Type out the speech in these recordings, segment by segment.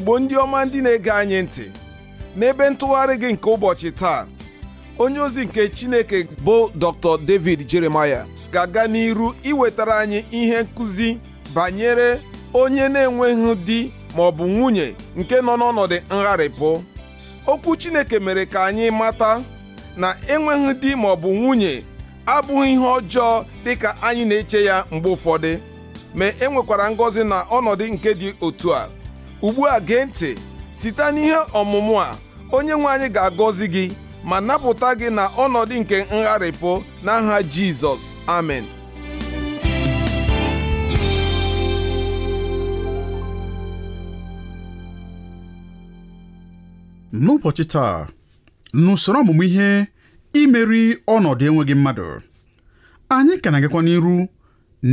igbo ndị ọma ndị na-ege anyị ntị n'ebe ntụgharị gị nke ụbọchị taa onye ozi nke chineke bụ dr david jeremaya ga-aga n'iru iwetara anyị ihe nkụzi banyere onye na-enweghị di ma ọ bụ nwunye nke nọ n'ọnọdụ ngharịpụ okwu chineke mere ka anyị mata na enweghị di ma ọ bụ nwunye abụghị ihe ọjọọ dịka anyị na-eche ya mgbe ụfọdụ ma e nwekwara ngọzi na ọnọdụ nke dị otu a ugbu a gee ntị site n'ihe ọmụmụ a onye nwe anyị ga-agọzi gị ma napụta gị na ọnọdụ nke ngharịpụ n'aha Jizọs amen n'ụbọchị taa n'usoro ọmụmụ ihe imeri ọnọdụ enweghị mmadụ anyị ka na-agakwa n'iru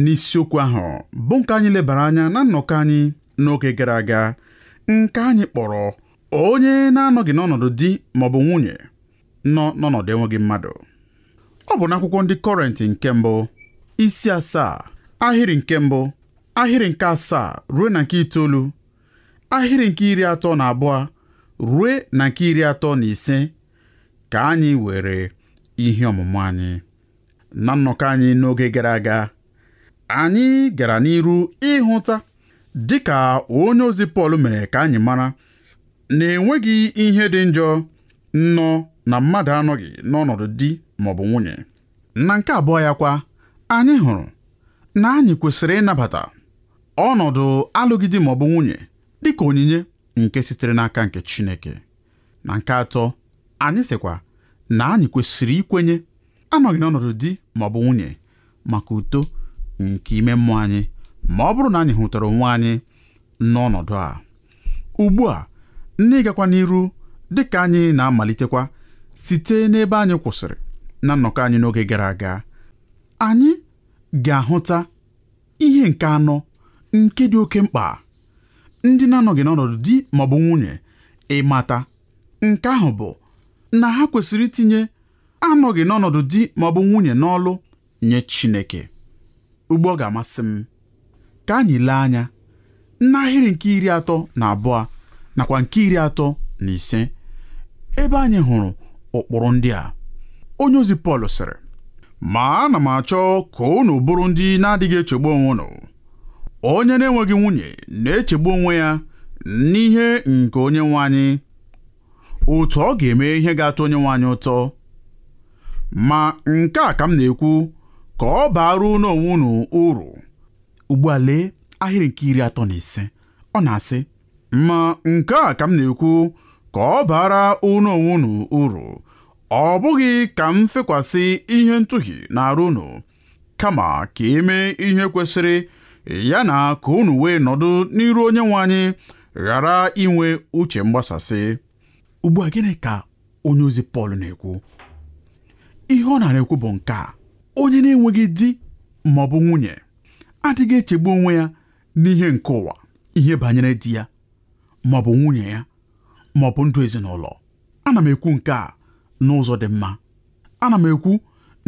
n'isiokwu ahụ bụ nke anyị lebara anya na nnọkọ anyị n'oge gara aga nke anyị kpọrọ onye na-anọghị n'ọnọdụ di maọbụ nwunye nọ n'ọnọdụ enweghị mmadụ ọ bụ n'akwụkwọ ndị kọrentị nke mbụ isi asaa ahịrị nke mbụ ahịrị nke asaa ruo na nke itoolu ahịrị nke iri atọ na abụọ ruo na nke iri atọ na ise ka anyị were ihe ọmụmụ anyị na nnọkọ anyị n'oge gara aga anyị gara n'iru ịhụta dịka onye ozi Pọl mere ka anyị mara na enweghị ihe dị njọ nnọọ na mmadụ anọghị n'ọnọdụ di maọbụ nwunye na nke abụọ ya kwa anyị hụrụ na anyị kwesịrị ịnabata ọnọdụ ma ọ maọbụ nwunye dịka onyinye nke sitere n'aka nke Chineke na nke atọ anyị sịkwa na anyị kwesịrị ikwenye anọghị n'ọnọdụ di maọbụ nwunye maka uto nke ime mmụọ anyị ma ọ bụrụ na anyị hụtara onwe anyị n'ọnọdụ a ugbu a ndị gakwa n'iru dị ka anyị na-amalitekwa site n'ebe anyị kwụsịrị na nnọkọ anyị n'oge gara aga anyị ga-ahụta ihe nke anọ nke dị oke mkpa ndị na-anọghị n'ọnọdụ di ma ọ bụ nwunye ịmata nke ahụ bụ na ha kwesịrị itinye anọghị n'ọnọdụ di ma ọ bụ nwunye n'ọlụ nye Chineke ugbu ọ ga-amasị m ka anyị lee anya n'ahịrị nke iri atọ na abụọ nakwa nke iri atọ na ise ebe anyị hụrụ ụkpụrụ ndị a onye ozi Pọl sịrị ma ana m achọ ka unu bụrụ ndị na-adịghị echegbu onwe unu onye na-enweghị nwunye na-echegbu onwe ya n'ihe nke onye nwe otu ọ ga-eme ihe ga-atọ onye nwe ụtọ ma nke a ka m na-ekwu ka ọ baara n'onwe unu uru ugbu a lee ahịrị nke iri atọ na ise ọ na-asị ma nke a ka m na-ekwu ka ọ bara unu onwe unu uru ọ bụghị ka m fekwasị ihe ntụhi na-arụ unu kama ka emee ihe kwesịrị ya na ka unu wee nọdụ n'iru onye nwe anyị ghara inwe uche mgbasasị ugbu a gịnị ka onye ozi Pọl na-ekwu ihe ọ na-ekwu bụ nke a onye na-enweghị di ma ọ bụ nwunye adịghị echegbu onwe ya n'ihe nke ụwa ihe banyere di ya ma ọ bụ nwunye ya ma ọ bụ ndụ ezinụlọ ana m ekwu nke a n'ụzọ dị mma ana m ekwu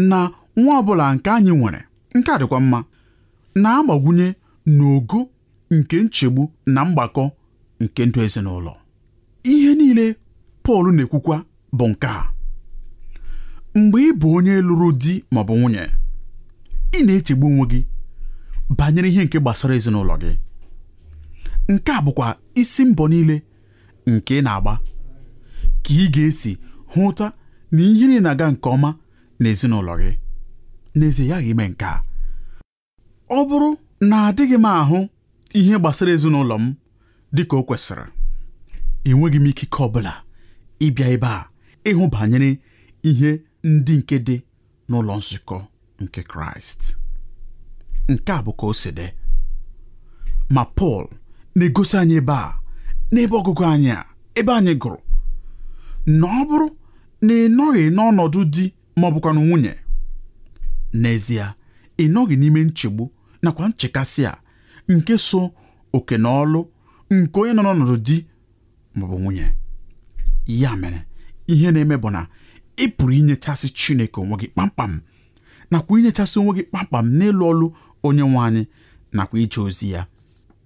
na nwa ọ bụla nke anyị nwere nke a dịkwa mma na-agbagwunye n'ogo nke nchegbu na mgbakọ nke ndụ ezinụlọ ihe niile Pọl na-ekwukwa bụ nke a mgbe ị bụ onye lụrụ di ma ọ bụ nwunye ị na-echegbu onwe gị banyere ihe nke gbasara ezinụlọ gị nke a bụkwa isi mbọ niile nke ị na-agba ka ị ga-esi hụta na ihe niile na-aga nke ọma na ezinụlọ gị n'ezie ya ime nke a ọ bụrụ na adịghị m ahụ ihe gbasara ezinụlọ m dị ka o kwesịrị enweghị m ikike ọ bụla ịbịa ebe a ịhụ banyere ihe ndị nke dị n'ụlọ nzukọ nke Kraịst nke a bụ ka o si dị ma Pọl na-egosi anyị ebe a n'ebe ọgụgụ anyị a ebe anyị gụrụ na ọ bụrụ na ị nọghị n'ọnọdụ di ma ọ bụkwa nwunye n'ezie ị nọghị n'ime nchegbu nakwa nchekasị a nke so oke na ọlụ nke onye nọ n'ọnọdụ di maọbụ nwunye ya mere ihe na-eme bụ na ị pụrụ inyechasị Chineke onwe gị kpamkpam nakwa inyechasị onwe gị kpamkpam n'ịlụ ọlụ onye nwe anyị nakwa ije ozi ya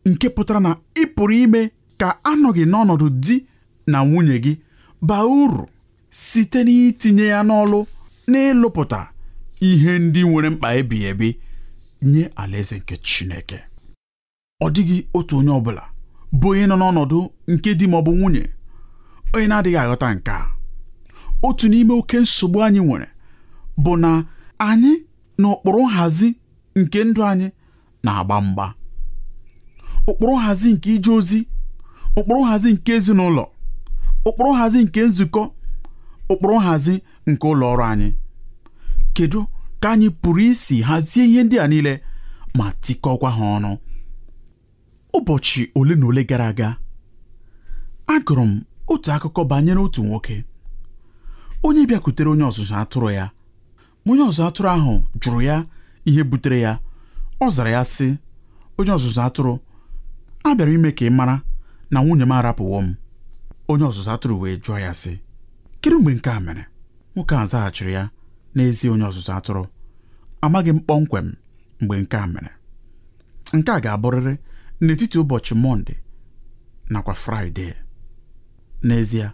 nke pụtara na ị pụrụ ime ka anọghị n'ọnọdụ di na nwunye gị baa uru site n'itinye ya n'ọlụ n'ịlụpụta ihe ndị nwere mkpa ebighị ebi nye alaeze nke Chineke ọ dịghị otu onye ọbụla bụ onye nọ n'ọnọdụ nke di ma ọ bụ nwunye onye na-adịghị aghọta nke a otu n'ime oke nsogbu anyị nwere bụ na anyị na ụkpụrụ nhazi nke ndụ anyị na-agba mgba ụkpụrụ nhazi nke ije ozi ụkpụrụ nhazi nke ezinụlọ ụkpụrụ nhazi nke nzukọ ụkpụrụ nhazi nke ụlọ ọrụ anyị kedu ka anyị pụrụ isi hazie ihe ndị a niile ma tikọkwa ha ọnụ ụbọchị ole na ole gara aga agụrụ m otu akụkọ banyere otu nwoke onye bịakwutere onye ọzụzụ atụrụ ya onye ọzụzụ atụrụ ahụ jụrụ ya ihe butere ya ọ zara ya sị onye ọzụzụ atụrụ a bịara ime ka ị mara na nwunye m arapụwo m onye ọzụzụ atụrụ wee jụọ ya sị kedu mgbe nke a mere nwoke a zaghachiri ya n'ezie onye ọzụzụ atụrụ amaghị m kpọmkwem mgbe nke a mere nke a ga-abụrịrị n'etiti ụbọchị mọnde nakwa fraịde n'ezie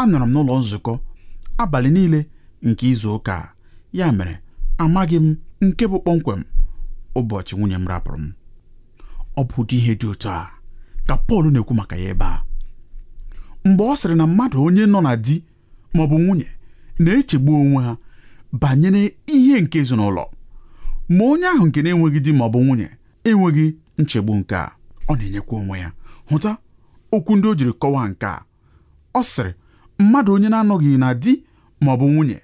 anọrọ m n'ụlọ nzukọ abalị niile nke izu ụka ya mere amaghị m nke bụ kpọmkwem ụbọchị nwunye m rapụrụ m ọ bụ ụdị ihe dị otu a ka Pọl na-ekwu maka ya ebe a mgbe ọ sịrị na mmadụ onye nọ na di ma ọ bụ nwunye na-echegbu onwe ha banyere ihe nke ezinụlọ ma onye ahụ nke na-enweghị di ma ọ bụ nwunye enweghị nchegbu nke a ọ na-enyekwa onwe ya hụta okwu ndị o jiri kọwaa nke a ọ sịrị mmadụ onye na-anọghị na di ma ọ bụ nwunye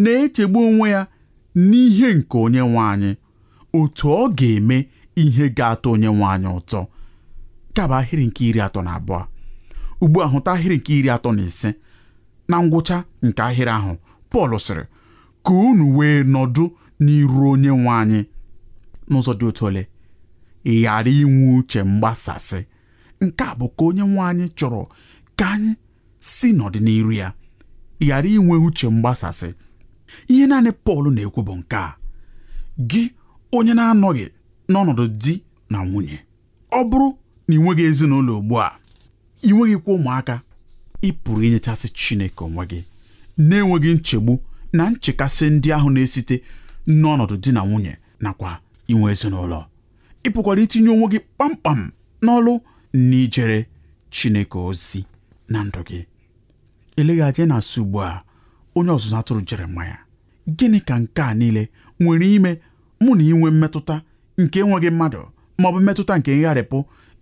na-echegbu onwe ya n'ihe nke onye nwe anyị otu ọ ga-eme ihe ga-atọ onye nwe anyị ụtọ kaba ahịrị nke iri atọ na abụọ ugbu a hụta ahịrị nke iri atọ na ise na ngwụcha nke ahịrị ahụ Pọl sịrị ka unu wee nọdụ n'iru onye nwe anyị n'ụzọ dị otu ole ghara inwe uche mgbasasị nke a bụ ka onye nwe anyị chọrọ ka anyị si n'ọdịnihu ya ghara inwe uche mgbasasị ihe naanị Pọl na-ekwu bụ nke a gị onye na-anọghị n'ọnọdụ di na nwunye ọ bụrụ na ị nweghị ezinụlọ ugbu a ị nweghịkwa ụmụaka ị pụrụ inyechasị Chineke onwe gị na-enweghị nchegbu na nchekasị ndị ahụ na-esite n'ọnọdụ di na nwunye nakwa inwe ezinụlọ ị pụkwara itinye onwe gị kpamkpam n'ọlụ na ijere Chineke ozi na ndụ gị eleghị anya na-asị ugbu a onye ọzụzụ atụrụ Jeremaya gịnị ka nke a niile nwere ime mụ na inwe mmetụta nke enweghị mmadụ ma ọ bụ mmetụta nke ngharịpụ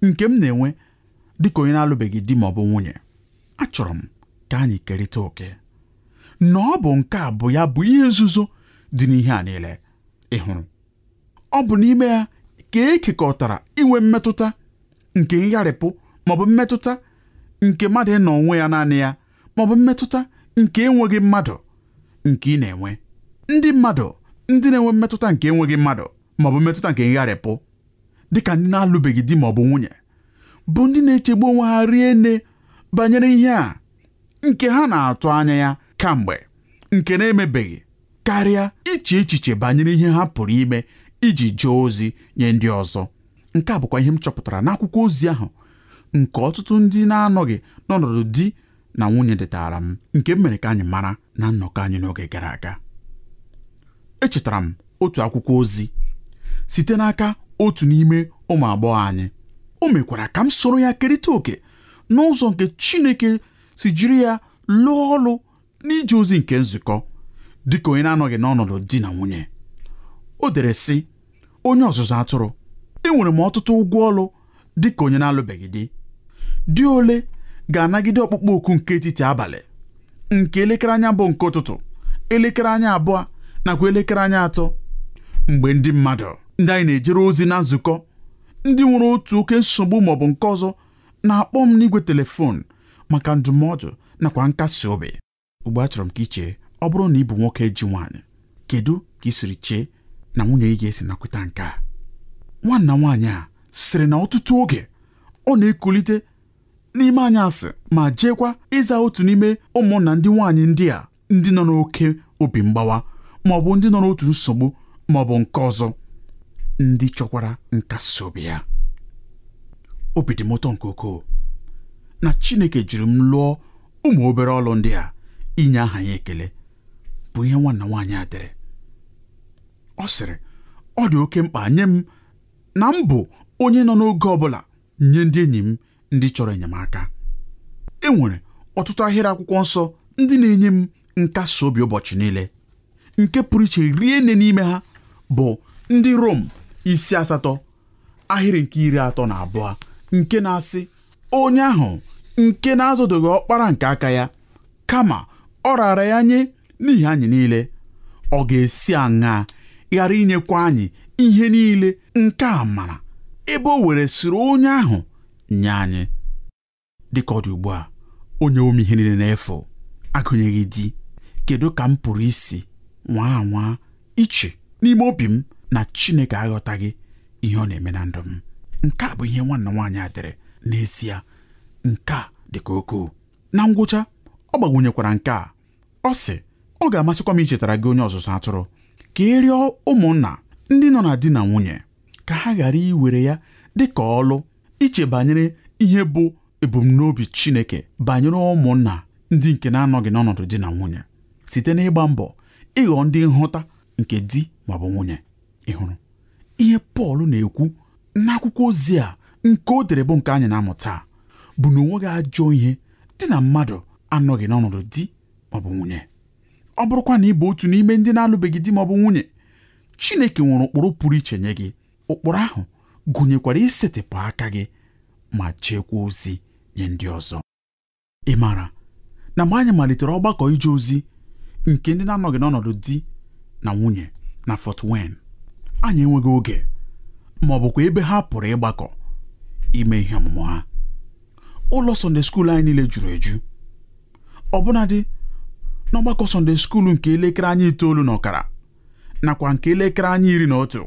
nke m na-enwe dịka onye na-alụbeghị di ma ọ bụ nwunye achọrọ m ka anyị kerịta oke na ọ bụ nke a bụ ya bụ ihe nzuzo dị n'ihe a niile ị hụrụ ọ bụ n'ime ya ka ekekọtara inwe mmetụta nke ngharịpụ ma ọ bụ mmetụta nke mmadụ ịnọ onwe ya naanị ya maọbụ bụ mmetụta nke enweghị mmadụ nke ị na-enwe ndị mmadụ ndị na-enwe mmetụta nke enweghị mmadụ maọbụ mmetụta nke ngharịpụ dịka ndị na-alụbeghị di maọbụ nwunye bụ ndị na-echegbu onwe ha rie nne banyere ihe a nke ha na-atụ anya ya kamgbe nke na-emebeghị karịa iche echiche banyere ihe ha pụrụ ime iji jee ozi nye ndị ọzọ nke a bụkwa ihe m chọpụtara n'akwụkwọ ozi ahụ nke ọtụtụ ndị na-anọghị n'ọnọdụ di na nwunye detara m nke m mere ka anyị mara na nnọkọ anyị n'oge gara aga echetara m otu akwụkwọ ozi site n'aka otu n'ime ụmụ agbọghọ anyị o mekwara ka m soro ya kerịta oke n'ụzọ nke Chineke si jiri ya lụọ ọrụ n'ije ozi nke nzukọ dịka onye na-anọghị n'ọnọdụ di na nwunye o dere sị onye ọzụzụ atụrụ enwere m ọtụtụ ụgwọ ọrụ dịka onye na-alụbeghị di di ole ga-anagide ọkpụkpọ oku nke etiti abalị nke elekere anya bụ nke ụtụtụ elekere anya abụọ nakwa elekere anya atọ mgbe ndị mmadụ ndị anyị na-ejere ozi na nzukọ ndị nwere otu oke nsogbu maọbụ nke ọzọ na-akpọ m n'igwe telefon maka ndụmọdụ nakwa nkasi obi ugbu a chọrọ m ka chee, ọ bụrụ na ị bụ nwoke ji nwaanyị kedu ka ị siri chee na nwunye ị ga-esi nakweta nke a nwanna nwaanyị a sịrị na ọtụtụ oge ọ na-ekulite n'ime asị ma jeekwa ịza otu n'ime ụmụnna ndị nwaanyị ndị a ndị nọ n'oke obi mgbawa ma ọ bụ ndị nọ n'otu nsogbu ma ọ bụ nke ọzọ ndị chọkwara nkasi obi ya obi dị m ụtọ nke ukwuu na Chineke jiri m lụọ ụmụ obere ọlụ ndị a inye aha ya ekele bụ ihe nwanna nwaanyị a dere ọ sịrị ọ dị oke mkpa nye m na m bụ onye nọ n'oge ọ bụla nye ndị enyi m ndị chọrọ enyemaka enwere ọtụtụ ahịrị akwụkwọ nsọ ndị na-enye m nkasi obi ụbọchị niile nke pụrụ iche rie nne n'ime ha bụ ndị Rom isi asatọ ahịrị nke iri atọ na abụọ nke na-asị onye ahụ nke na-azụdoghị ọkpara nke aka ya kama ọ raara ya nye n'ihi anyị niile ọ ga-esi aṅaa ghara inyekwa anyị ihe niile nke a mara ebe o were siri onye ahụ nye anyị dịka ọ dị ugbu a onye ome ihe niile na-efu agụnyeghị di kedu ka m pụrụ isi nwa anwa iche n'ime obi m na Chineke aghọtaghị ihe ọ na-eme na ndụ m nke a bụ ihe nwanna nwaanyị a dere n'ezie nke a dị ka na ngwụcha ọ gbagwunyekwara nke a ọ sị ọ ga-amasịkwa m ichetara gị onye ọzụzụ atụrụ ka e rịọ ụmụnna ndị nọ na di na nwunye ka ha ghara iwere ya dị ka ọlụ iche banyere ihe bụ ebumnobi Chineke banyere ụmụnna ndị nke na-anọghị n'ọnọdụ di na nwunye site n'ịgba mbọ ịghọ ndị nhụta nke di maọbụ nwunye ịhụrụ ihe Pọl na-ekwu n'akwụkwọ ozi a nke o dere bụ nke anyị na-amụta bụ na gị ajọ ihe dị na mmadụ anọghị n'ọnọdụ di maọbụ nwunye ọ bụrụkwa na ị bụ otu n'ime ndị na-alụbeghị di maọbụ nwunye Chineke nwere ụkpụrụ pụrụ iche nye gị ụkpụrụ ahụ gụnyekwara isetịpụ aka gị ma chekwa ozi nye ndị ọzọ ị maara na mgbe anyị malitere ọgbakọ ije ozi nke ndị na-anọghị n'ọnọdụ di na nwunye na Fort wen. anyị enweghị oge ma ọ bụkwa ebe ha pụrụ ịgbakọ ime ihe ọmụmụ ha ụlọ Sunday skuul anyị niile juru eju ọbụnadị n'ọgbakọ Sunday skuul nke elekere anyị itoolu na ọkara nakwa nke elekere anyị iri na otu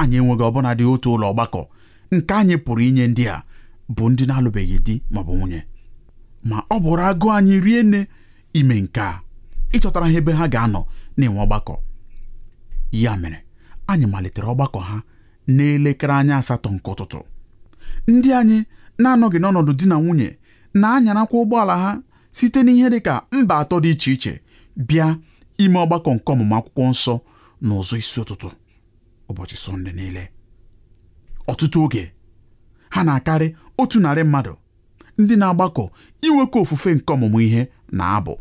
anyị enweghị ọbụnadị otu ụlọ ọgbakọ nke anyị pụrụ inye ndị a bụ ndị na-alụbeghị di maọbụ nwunye ma ọ bụrụ agụụ anyị rie nne ime nke a ịchọtara ha ebe ha ga-anọ na-enwe ọgbakọ ya mere anyị malitere ọgbakọ ha n'elekere anya asatọ nke ụtụtụ ndị anyị na-anọghị n'ọnọdụ di na nwunye na-anyarakwa ụgbọala ha site n'ihe dị ka mba atọ dị iche iche bịa ime ọgbakọ nke ọmụmụ akwụkwọ nsọ na ụzọ isi ụtụtụ ụbọchị sọnde niile ọtụtụ oge ha na-akarị otu narị mmadụ ndị na-agbakọ inwekọ ofufe nke ọmụmụ ihe na abụ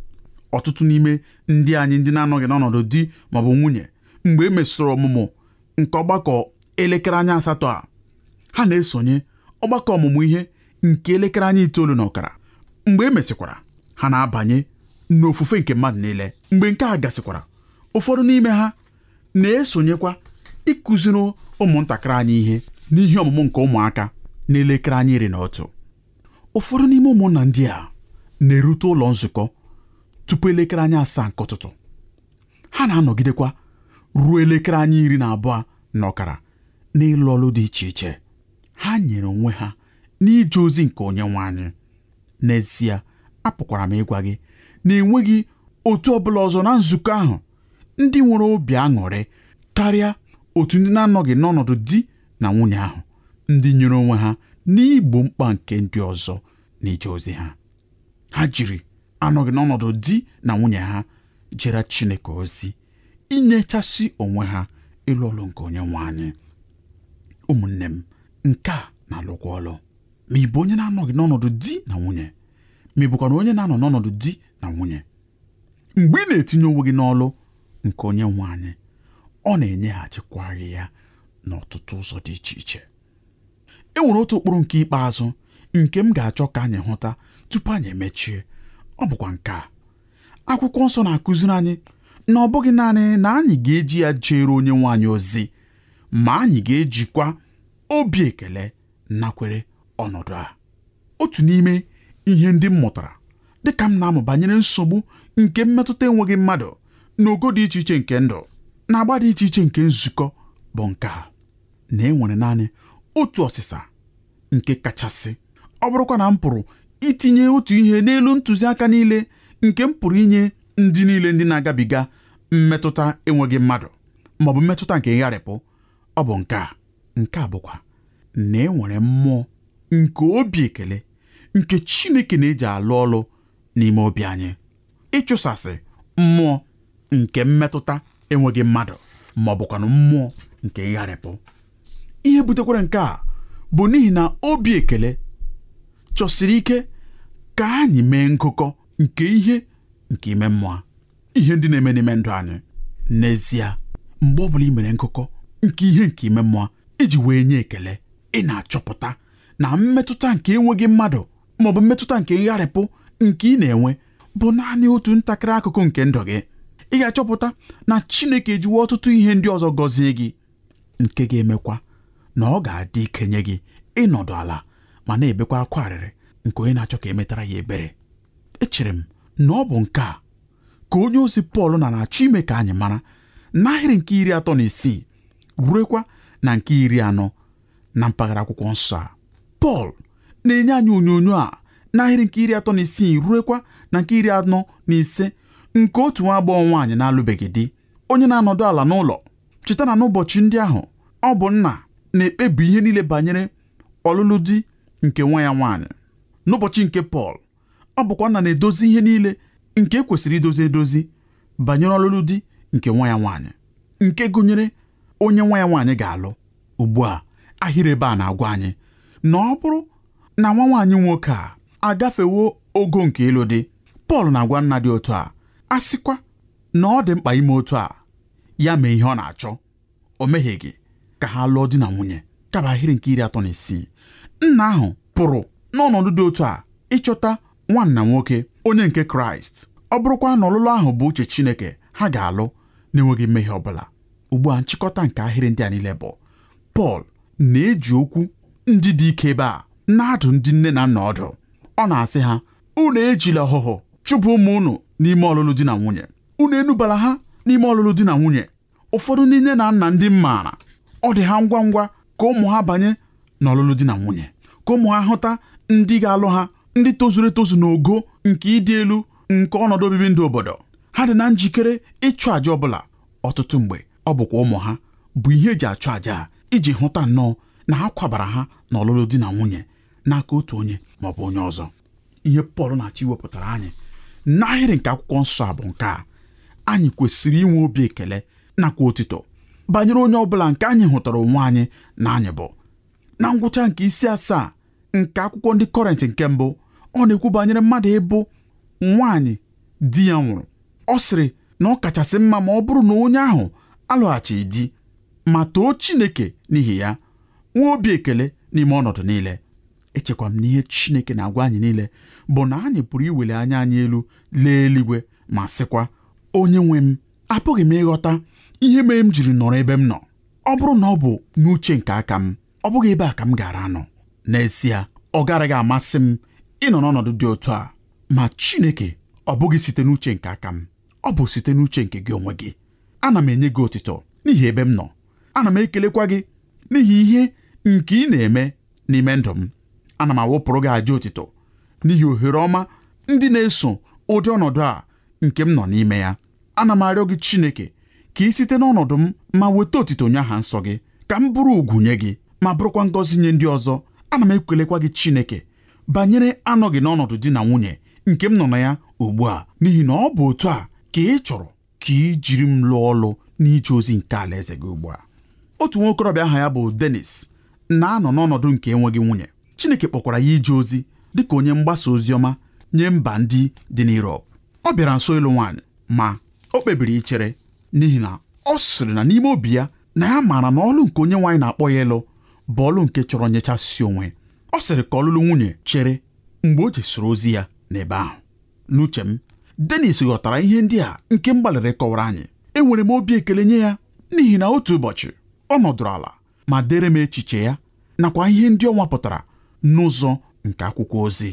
ọtụtụ n'ime ndị anyị ndị na-anọghị n'ọnọdụ di maọbụ nwunye mgbe e mesịrị ọmụmụ nke ọgbakọ elekere anya asatọ a ha na-esonye ọgbakọ ọmụmụ ihe nke elekere anya itoolu na ọkara mgbe e mesịkwara ha na-abanye n'ofufe nke mmadụ niile mgbe nke a gasịkwara ụfọdụ n'ime ha na-esonyekwa ịkụziri ụmụntakịrị anyị ihe n'ihe ọmụmụ nke ụmụaka elekere anya iri na otu ụfọdụ n'ime ụmụnna ndị a na-erute ụlọ nzukọ tupu elekere anya asaa nke ụtụtụ ha na-anọgidekwa ruo elekere anya iri na abụọ na ọkara n'ịlụ ọlụ dị iche iche ha nyere onwe ha n'ije ozi nke onye nwe anyị n'ezie apụkwara m ịgwa gị na enweghị otu ọbụla ọzọ na nzukọ ahụ ndị nwere obi aṅụrị karịa otu ndị na-anọghị n'ọnọdụ di na nwunye ahụ ndị nyere onwe ha n'igbo mkpa nke ndị ọzọ na ije ozi ha ha jiri anọghị n'ọnọdụ di na nwunye ha jere Chineke ozi inyechasị onwe ha ịlụ ọlụ nke onye anyị ụmụnne m nke a na-alụkwa ọlụ ma ị bụ onye na-anọghị n'ọnọdụ di na nwunye ma ị bụkwara onye na-anọ n'ọnọdụ di na nwunye mgbe ị na-etinye onwe gị n'ọlụ nke onye nwe anyị ọ na-enyeghachikwa gị ya n'ọtụtụ ụzọ dị iche iche e nwere otu ụkpụrụ nke ikpeazụ nke m ga-achọ ka anyị hụta tupu anyị emechie ọ bụkwa nke a akwụkwọ nsọ na-akụziri anyị na ọ bụghị naanị na anyị ga-eji ya jere onye anyị ozi ma anyị ga-ejikwa obi ekele nakwere ọnọdụ a otu n'ime ihe ndị m mụtara dịka m na-amụ banyere nsogbu nke mmetụta enweghị mmadụ na ogo dị iche iche nke ndụ na agba dị iche iche nke nzukọ bụ nke a na enwere naanị otu ọsịsa nke kachasị ọ bụrụkwa na m pụrụ itinye otu ihe n'elu ntụziaka niile nke m pụrụ inye ndị niile ndị na-agabiga mmetụta enweghị mmadụ ma ọ bụ mmetụta nke ngharịpụ ọ bụ nke a nke a bụkwa na e nwere mmụọ nke obi ekele nke Chineke na-eji alụ ọlụ n'ime obi anyị ịchụsasị mmụọ nke mmetụta enweghị mmadụ ma ọ bụkwanụ mmụọ nke ịgharịpụ. ihe butekwara nke a bụ n'ihi na obi ekele chọsiri ike ka anyị mee nkụkọ nke ihe nke ime mmụọ ihe ndị na-eme n'ime ndụ anyị n'ezie mgbe ọ bụla ị mere nkụkọ nke ihe nke ime mmụọ iji wee nye ekele ị na-achọpụta na mmetụta nke enweghị mmadụ ma ọ bụ mmetụta nke ngharịpụ nke ị na-enwe bụ naanị otu ntakịrị akụkụ nke ndụ gị ị ga-achọpụta na Chineke ejiwe ọtụtụ ihe ndị ọzọ gọzie gị nke ga-emekwa na ọ ga-adị ikenye gị ịnọdụ ala ma na-ebekwa akwa arịrị nke onye na-achọ ka emetara ya ebere echere m na ọ bụ nke a ka onye ozi Pọl na na-achọ ime ka anyị mara n'ahịrị nke iri atọ na isii ruekwa na nke iri anọ na mpaghara akwụkwọ nsọ a Pọl na-enye anyị onyonyo a n'ahịrị nke iri atọ na isii ruekwa na nke iri anọ na ise nke otu nwa agbọghọ nwaanyị na-alụbeghị di onye na-anọdụ ala n'ụlọ cheta na n'ụbọchị ndị ahụ ọ bụ nna na-ekpebi ihe niile banyere ọlụlụ di nke nwa ya nwaanyị n'ụbọchị nke Pọl ọ bụkwa na na-edozi ihe niile nke e kwesịrị idozi edozi banyere ọlụlụ di nke nwa ya nwaanyị nke gụnyere onye nwa ya nwaanyị ga-alụ ugbu a ahịrị ebe a na-agwa anyị na ọ bụrụ na nwa nwaanyị nwoke a agafewo ogo nke ịlụ di Pọl na-agwa nna dị otu a a sịkwa na ọ dị mkpa ime otu a ya mee ihe ọ na-achọ o mehieghị ka ha lụọ di na nwunye kaba ahịrị nke iri atọ na isii nna ahụ pụrụ n'ọnọdụ dị otu a ịchọta nwanna nwoke onye nke kraịst ọ bụrụkwa na ọlụlụ ahụ bụ uche chineke ha ga-alụ na-enweghị mmehie ọ bụla ugbu a nchịkọta nke ahịrị ndị a niile bụ pọl na-eji okwu ndị dị ike ebe a na-adụ ndị nne na nna ọdụ ọ na-asị ha unu ejila ọhụhụ chụpụ ụmụ unu n'ime ọlụlụ di na nwunye unu enubala ha n'ime ọlụlụ di na nwunye ụfọdụ ndị nne na nna ndị maara ọ dị ha ngwa ngwa ka ụmụ ha banye n'ọlụlụ di na nwunye ka ụmụ ha hụta ndị ga-alụ ha ndị tozuru etozu n'ogo nke ịdị elu nke ọnọdụ obibi ndụ obodo ha dị na njikere ịchụ àjà ọbụla ọtụtụ mgbe ọ bụkwa ụmụ ha bụ ihe eji achụ àjà a iji hụta nnọọ na ha kwabara ha na ọlụlụ di na nwunye n'aka otu onye ma ọ bụ onye ọzọ ihe Pọl na-achọ iwepụtara anyị n'ahịrị nke akwụkwọ nsọ a bụ nke a anyị kwesịrị inwe obi ekele nakwa otito banyere onye ọbụla nke anyị hụtara onwe anyị na anyị bụ na ngwụcha nke isi asaa nke akwụkwọ ndị kọrentị nke mbụ ọ na-ekwu banyere mmadụ ịbụ nwaanyị di ya nwụrụ ọ sịrị na ọ kachasị mma ma ọ bụrụ na onye ahụ alụghachi di ma too Chineke n'ihi ya nwee obi ekele n'ime ọnọdụ niile echekwa m na ihe Chineke na-agwa anyị niile bụ na anyị pụrụ iweli anya anyị elu lee eluigwe ma sịkwa onye nwe m apụghị m ịghọta ihe mere m jiri nọrọ ebe m nọ ọ bụrụ na ọ bụ n'uche nke aka m ọ bụghị ebe a ka m gara anọ n'ezie ọ garaghị amasị m ịnọ n'ọnọdụ dị otu a ma Chineke ọ bụghị site n'uche nke aka m ọ bụ site n'uche nke gị onwe gị ana m enye gị otito n'ihi ebe m nọ ana m ekelekwa gị n'ihi ihe nke ị na-eme n'ime ndụ m ana m awụpụrụ gị aja otito n'ihi ohere ọma ndị na-eso ụdị ọnọdụ a nke m nọ n'ime ya ana m arịọ gị Chineke ka ị site n'ọnọdụ m ma weta otito onye aha nsọ gị ka m bụrụ ugwu nye gị ma bụrụkwa ngọzi nye ndị ọzọ ana m ekwelekwa gị Chineke banyere anọghị n'ọnọdụ di na nwunye nke m nọ na ya ugbu a n'ihi na ọ bụ otu a ka ị chọrọ ka ị jiri m lụọ ọlụ n'ije ozi nke alaeze gị ugbu a otu nwa okorobịa aha ya bụ denis na-anọ n'ọnọdụ nke enweghị nwunye Chineke kpọkwara ya ije ozi dị ka onye mgbasa ozi ọma nye mba ndị dị n'Europe ọ bịara nso ịlụ nwaanyị ma o kpebiri ichere n'ihi na ọ sịrị na n'ime obi ya na ya maara na ọlụ nke onye nwaanyị na-akpọ ya ịlụ bọlụ nke chọrọ nyechasị onwe ọ sịrị ka ọlụlụ nwunye chere mgbe o jesiri ozi ya n'ebe ahụ n'uche m Dennis ghọtara ihe ndị a nke mgbalịrị kọwara anyị enwere m obi ekele nye ya n'ihi na otu ụbọchị ọ nọdụrụ ala ma dere m echiche ya nakwa ihe ndị ọ nwapụtara n'ụzọ nke akwụkwọ ozi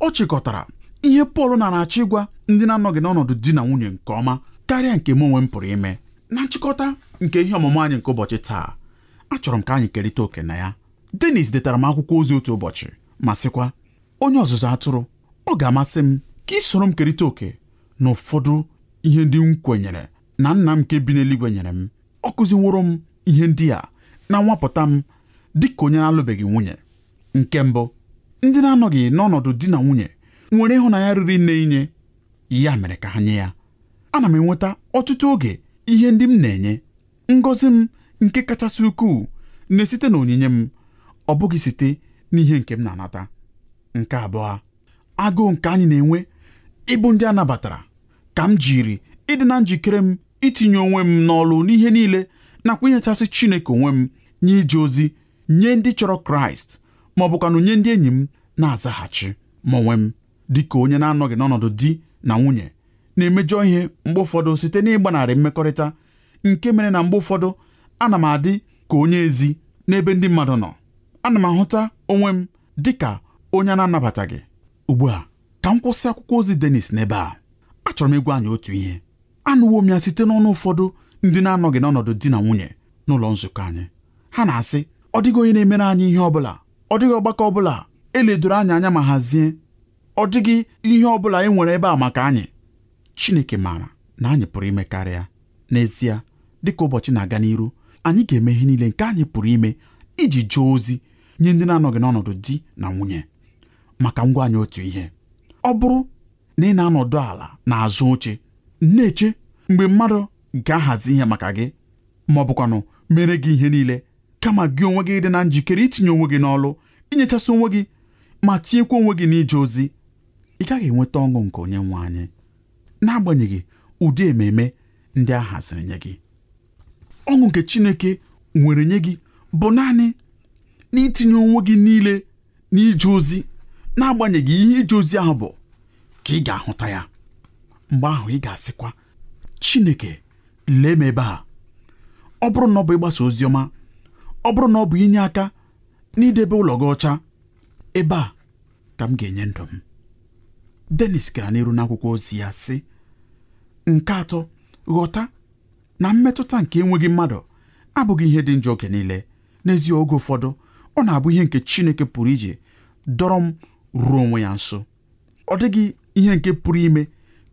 ọ chịkọtara ihe Pọl nara achọ ịgwa ndị na-anọghị n'ọnọdụ di na nwunye nke ọma karịa nke m onwe m pụrụ ime na nchịkọta nke ihe ọmụmụ anyị nke ụbọchị taa achọrọ m ka anyị kerịta oke na ya Dennis detara m akwụkwọ ozi otu ụbọchị ma sịkwa onye ọzụzụ atụrụ ọ ga-amasị m ka ị soro m kerịta oke na ụfọdụ ihe ndị m kwenyere na nna m nke bi n'eluigwe nyere m ọ kụziworo m ihe ndị a na nwapụta m dị ka onye na-alụbeghị nwunye nke mbụ ndị na-anọghị n'ọnọdụ di na nwunye nwere ịhụnanya riri nne inye ya mere ka ha nye ya ana m enweta ọtụtụ oge ihe ndị m na-enye ngọzi m nke kachasị ukwuu na-esite na onyinye m ọ bụghị site n'ihe nke m na-anata nke abụọ agụụ nke anyị na-enwe ịbụ ndị a nabatara ka m jiri ịdị na njikere m itinye onwe m n'ọlụ n'ihe niile nakwa inyechasị Chineke onwe m nye ije ozi nye ndị chọrọ Kraịst ma ọ bụkwanụ nye ndị enyi m na-azaghachi ma onwe m dị ka onye na-anọghị n'ọnọdụ di na nwunye na-emejọ ihe mgbe ụfọdụ site n'ịgbanarị mmekọrịta nke mere na mgbe ụfọdụ ana m adị ka onye ezi n'ebe ndị mmadụ nọ ana m ahụta onwe m dị ka onye a na-anabataghị ugbu a ka m kwụsị akwụkwọ ozi Dennis n'ebe a achọrọ m ịgwa anyị otu ihe anụwo m ya site n'ọnụ ụfọdụ ndị na-anọghị n'ọnọdụ di na nwunye n'ụlọ nzukọ anyị ha na-asị ọ dịghị onye na-emere anyị ihe ọ bụla ọ dịghị ọgbakọ ọbụla eledoro anyị anya ma hazie ọ dịghị ihe ọ bụla e nwere ebe a maka anyị Chineke maara na anyị pụrụ ime karịa n'ezie dịka ụbọchị na-aga n'iru anyị ga-eme ihe niile nke anyị pụrụ ime iji jụọ ozi nye ndị na-anọghị n'ọnọdụ di na nwunye maka ngwa anyị otu ihe ọ bụrụ na ị na-anọdụ ala na azụ oche na-eche mgbe mmadụ ga-ahazi ihe maka gị ma ọ bụkwanụ mere gị ihe niile kama gị onwe gị dị na njikere itinye onwe gị n'ọlụ inyechasị onwe gị ma tinyekwa onwe gị n'ije ozi ị gaghị enweta ọṅụ nke onye nwe anyị n'agbanyeghị ụdị ememe ndị a haziri nye gị ọṅụ nke Chineke nwere nye gị bụ naanị n'itinye onwe gị niile n'ije ozi n'agbanyeghị ihe ije ozi ahụ bụ ka ị ga-ahụta ya mgbe ahụ ị ga-asịkwa Chineke lee m ebe a ọ bụrụ na ọ bụ ịgbasa ozi ọma ọ bụrụ na ọ bụ inye aka n'idebe ụlọ gị ọcha ebe a ka m ga-enye ndụ m Dennis gara n'iru n'akwụkwọ ozi ya sị nke atọ ghọta na mmetụta nke enweghị mmadụ abụghị ihe dị njọ oge niile n'ezie oge ụfọdụ ọ na-abụ ihe nke Chineke pụrụ ije dọrọ m ruo onwe ya nso ọ dịghị ihe nke pụrụ ime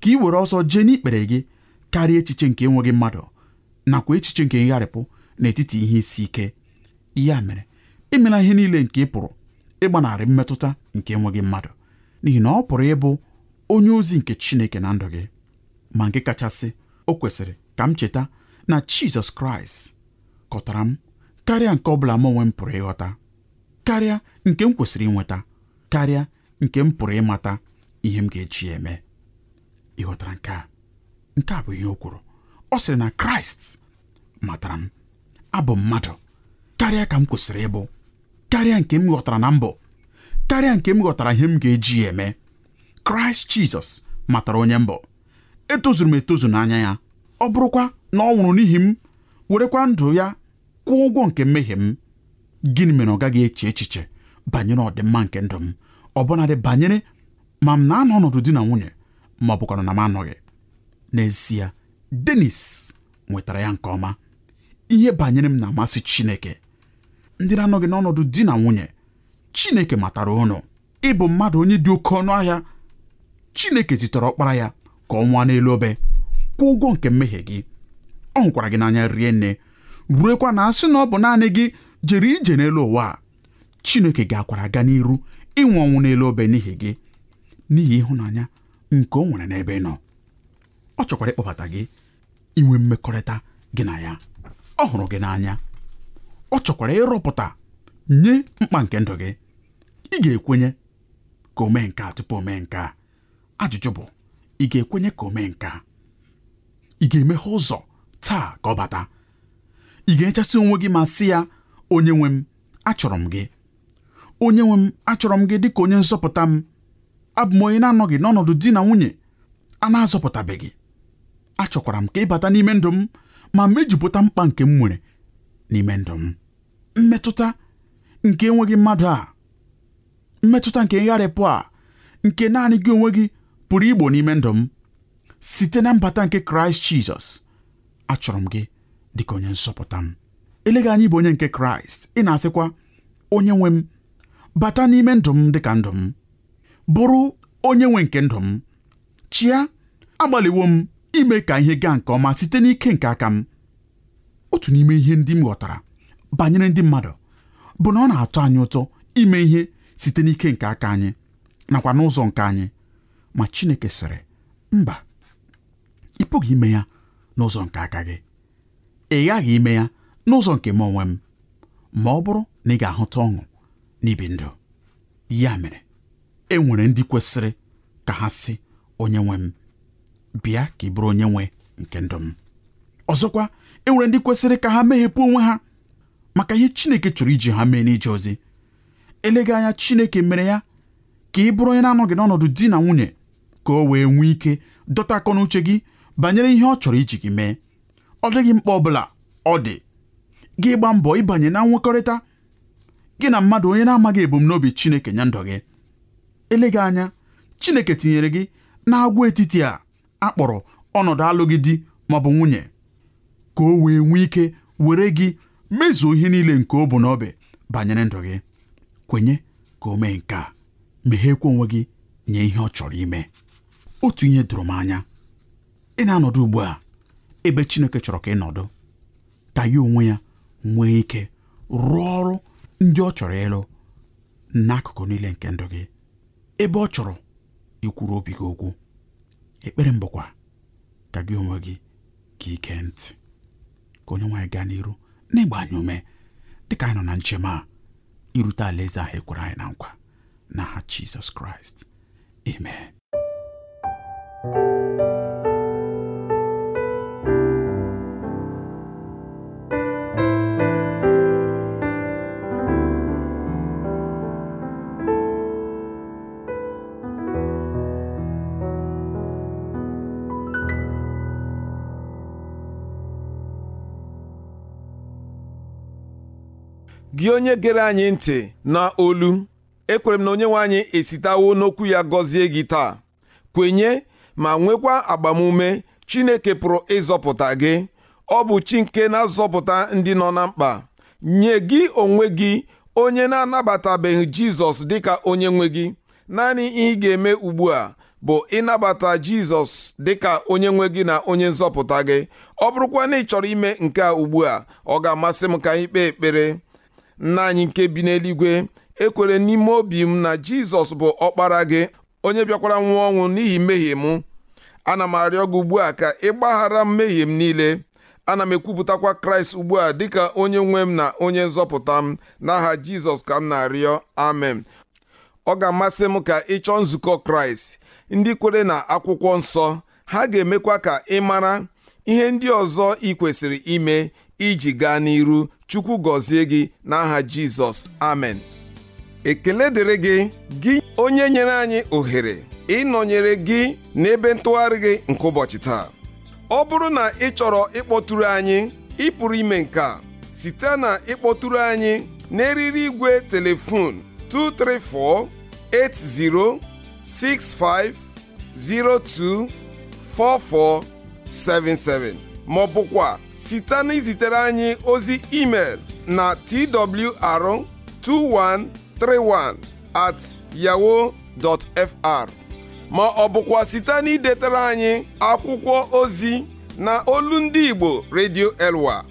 ka ị were ọsọ jee n'ikpere gị karịa echiche nke enweghị mmadụ nakwa echiche nke ngharịpụ n'etiti ihe isi ike ya mere imela ihe niile nke ị pụrụ ịgbanarị mmetụta nke enweghị mmadụ n'ihi na ọ pụrụ ịbụ onye ozi nke Chineke na ndụ gị ma nke kachasị o kwesịrị ka m cheta na Jizọs Kraịst kọtara m karịa nke ọbụla m onwe m pụrụ ịghọta karịa nke m kwesịrị inweta karịa nke m pụrụ ịmata ihe m ga-eji eme Ịghọtara nke a nke a bụ ihe o kwuru ọ sịrị na Kraịst matara m abụ mmadụ karịa ka m kwesịrị ịbụ karịa nke m ghọtara na mbụ karịa nke m ghọtara ihe m ga-eji eme Kraịst Jizọs matara onye mbụ etozuru m etozu n'anya ya ọ bụrụkwa na ọ nwụrụ n'ihi m werekwa ndụ ya kwụọ ụgwọ nke mmehie m gịnị mere ọ gaghị eche echiche banyere ọdịmma nke ndụ m ọbụnadị banyere ma m na-anọ ọnọdụ di na nwunye ma ọ bụkwara na m anọghị n'ezie Denis nwetara ya nke ọma ihe banyere m na-amasị Chineke ndị na-anọghị n'ọnọdụ di na nwunye Chineke matara ụnụ ịbụ mmadụ onye dị oke ọnụ ahịa Chineke zitere ọkpara ya ka ọ nwa n'elu obe kwụọ ụgwọ nke mmehie gị ọ hụkwara gị n'anya rie nne ruekwa na asị na ọ bụ naanị gị jere ije n'elu ụwa a Chineke ga-akwara aga n'iru ịnwụ ọnwụ n'elu obe n'ihi gị n'ihi ịhụnanya nke o nwere n'ebe ị nọ ọ chọkwara ịkpọbata gị inwe mmekọrịta gị na ya ọ hụrụ gị n'anya ọ chọkwara ịrụpụta nye mkpa nke ndụ gị ị ga-ekwenye ka o mee nke tupu o mee nke ajụjụ bụ ị ga-ekwenye ka o mee nke a ị ga-emeghe ụzọ taa ka ọ bata ị ga-echasị onwe gị ma sị ya onye nwe m achọrọ m gị onye nwe m achọrọ m gị dị ka onye nzọpụta m abụ m onye na-anọghị n'ọnọdụ di na nwunye a na-azọpụtabeghị achọkwara m ka ị bata n'ime ndụ m ma mejupụta mkpa nke m nwere n'ime ndụ m mmetụta nke enweghị mmadụ a mmetụta nke ngharịpụ a nke naanị gị onwe gị pụrụ igbo n'ime ndụ m site na mbata nke kraịst jizọs achọrọ m gị dịka onye nsọpụta m eleghị anyị bụ onye nke kraịst ị na-asịkwa onye nwe m bata n'ime ndụ m dịka ndụ m bụrụ onye nwe nke ndụ m chịa agbalịwo m ime ka ihe gaa nke ọma site n'ike nke aka m otu n'ime ihe ndị m ghọtara banyere ndị mmadụ bụ na ọ na-atọ anyị ụtọ ime ihe site n'ike nke aka anyị nakwa n'ụzọ nke anyị ma Chineke sịrị mba ị pụghị ime ya n'ụzọ nke aka gị ị ghaghị ime ya n'ụzọ nke m onwe m ma ọ bụrụ na ị ga-ahụta ọṅụ n'ibi ndụ ya mere e nwere ndị kwesịrị ka ha sị onye nwe m bịa ka ị bụrụ onye nwe nke ndụ m ọzọkwa e nwere ndị kwesịrị ka ha meghepụ onwe ha maka ihe Chineke chọrọ iji ha mee n'ije ozi elega anya Chineke mere ya ka ị bụrụ onye na-anọghị n'ọnọdụ di na nwunye ka o wee nwee ike dọta akọ na uche gị banyere ihe ọ chọrọ iji gị mee ọ dịghị mkpa ọbụla ọ dị gị gba mbọ ịbanye na nwekọrịta gị na mmadụ onye na-amaghị ebumnobi Chineke nye ndụ gị eleghị anya Chineke tinyere gị n'agwa etiti a akpọrọ ọnọdụ alụghị di ma ọ bụ nwunye ka o wee nwee ike were gị mezuo ihe niile nke ọ bụ n'obi banyere ndụ gị kwenye ka o mee nke a meghekwa onwe gị nye ihe ọ chọrọ ime otu ihe doro m anya ị na-anọdụ ugbu a ebe Chineke chọrọ ka ị nọdụ ka ya onwe ya nwee ike rụọ ọrụ ndị ọ chọrọ ịlụ n'akụkụ niile nke ndụ gị ebe ọ chọrọ ikwuru obi gị okwu ekpere mbụkwa ka gị onwe gị ka ike ntị ka onye nwaanyị gaa n'iru n'ịgba anyị ume dịka anyị nọ na njem a irute alaeze ahụ ekwere anyị na nkwa n'aha Jizọs Kraịst amen gị onye gere anyị ntị na olu ekwere m na onye nwe anyị esitawo n'okwu ya gọzie gị taa kwenye ma nwekwa agbamume Chineke pụrụ ịzọpụta gị ọ bụ chi nke na-azọpụta ndị nọ na mkpa nye gị onwe gị onye na-anabatabeghị Jizọs dịka onye nwe gị naanị ihe ị ga-eme ugbu a bụ ịnabata Jizọs dịka onye nwe gị na onye nzọpụta gị ọ bụrụkwa na ị chọrọ ime nke a ugbu a ọ ga-amasị m ka anyị kpee ekpere nna anyị nke bi n'eluigwe ekwere n'ime obi m na jizọs bụ ọkpara gị onye bịakwara nwụọ ọnwụ n'ihi mmehie m ana m arịọ gị ugbu a ka ị gbaghara mmehie m niile ana m ekwupụtakwa kraịst ugbu a dịka onye nwe m na onye nzọpụta m n'aha jizọs ka m na-arịọ amen ọ ga-amasị m ka ị chọọ nzukọ kraịst ndị kwere na akwụkwọ nsọ ha ga-emekwa ka ị mara ihe ndị ọzọ ị kwesịrị ime iji gaa n'iru chukwu gọzie gị n'aha jizọs amen ekele dịrị gị gị onye nyere anyị ohere ịnọnyere gị n'ebe ntụgharị gị nke ụbọchị taa ọ bụrụ na ị chọrọ ịkpọtụrụ anyị ị pụrụ ime nke a site na ịkpọtụrụ anyị n'eriri igwe telefon 2348065024477 ma ọ bụkwa site n'izitere anyị ozi email na twr2131 at yahoo fr ma ọ bụkwa site na anyị akwụkwọ ozi na olu ndị Igbo Radio Elwa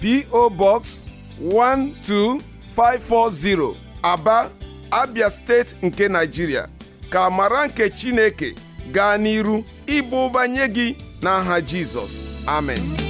PO Box 12540 Aba Abia steeti nke Nigeria ka mara nke Chineke gaa n'iru ịba ụba nye gị n'aha Jesus, amen